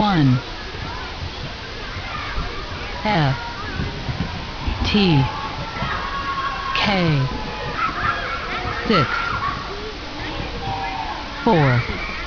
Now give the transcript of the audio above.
1 F T K six four